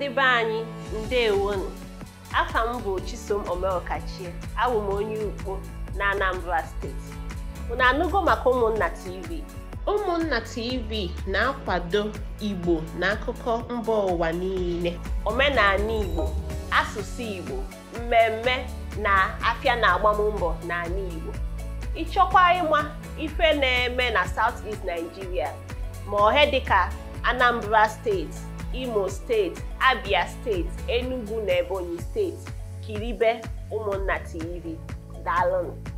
ndị be anyị ndewonu afa m bụ Chisom Omeokachie awụ onye ukpo na Anambra steeti na anụgo maka ụmụnna TV ụmụnna TV na-akwado Igbo na akụkọ mba ụwa niile omenala Igbo asụsụ Igbo mmemme na afịa na agbammbọ n'ala Igbo ịchọkwa ịma ife na-eme na South East Nigeria ma ohe dịka Anambra steeti imo steeti abia steeti enugu na ebonyi steeti kiribe ụmụnna tv daalụnụ